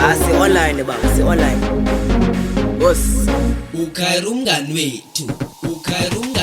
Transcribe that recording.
ah si-online baba si-online bos ukhayira umngani wethu